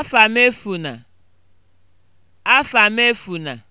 afamefuna afamefuna